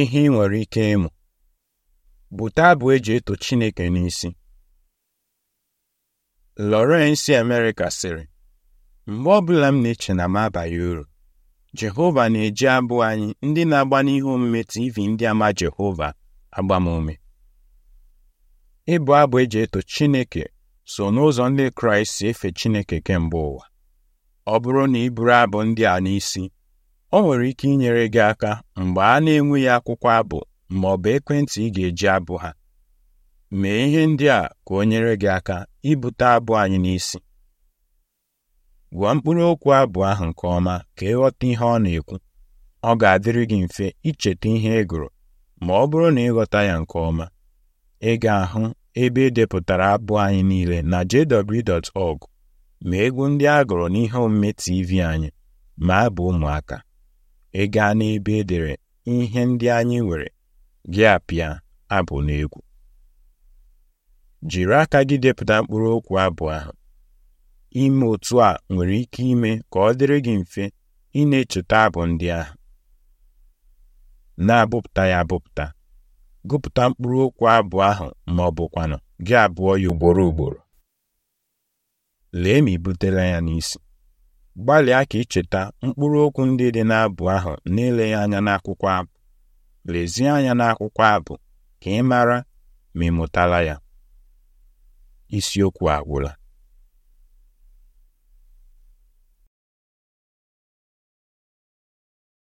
ihe ị nwere ike ịmụ bute abụ eji eto Chineke n'isi Lawrence America sịrị mgbe ọbụla m na-eche na m abaghị uru Jehova na-eji abụ anyị ndị na-agba n'ihu omume TV ndị ama Jehova agbamume ịbụ abụ eji eto Chineke so n'ụzọ ndị Kraịst si efe Chineke kemgbe ụwa ọ bụrụ na ị bụrụ abụ ndị a n'isi o nwere ike inyere gị aka mgbe a na-enweghị akwụkwọ abụ ma ọ bụ ekwentị ị ga-eji abụ ha mee ihe ndị a ka o nyere gị aka ibute abụ anyị n'isi Gwa mkpụrụ okwu abụ ahụ nke ọma ka ịghọta ihe ọ na-ekwu ọ ga-adịrị gị mfe icheta ihe ị gụrụ ma ọ bụrụ na ịghọta ya nke ọma ị ga-ahụ ebe edepụtara abụ anyị niile na jw.org ma egwu ndị a gụrụ n'ihe omume TV anyị ma abụ ụmụaka ị gaa n'ebe e dere ihe ndị anyị nwere gị apịa abụ n'egwu jiri aka gị depụta mkpụrụ okwu abụ ahụ ime otu a nwere ike ime ka ọ dịrị gị mfe ị na-echeta abụ ndị ahụ na-abụpụta ya abụpụta gụpụta mkpụrụ okwu abụ ahụ ma ọ bụkwanụ gị abụọ ya ugboro ugboro lee ma i butela ya n'isi gbalịa ka ị cheta mkpụrụ okwu ndị dị n'abụ ahụ n'eleghị anya n'akwụkwọ abụ lezie anya n'akwụkwọ abụ ka ị mara ma ị mụtala ya isiokwu agwụla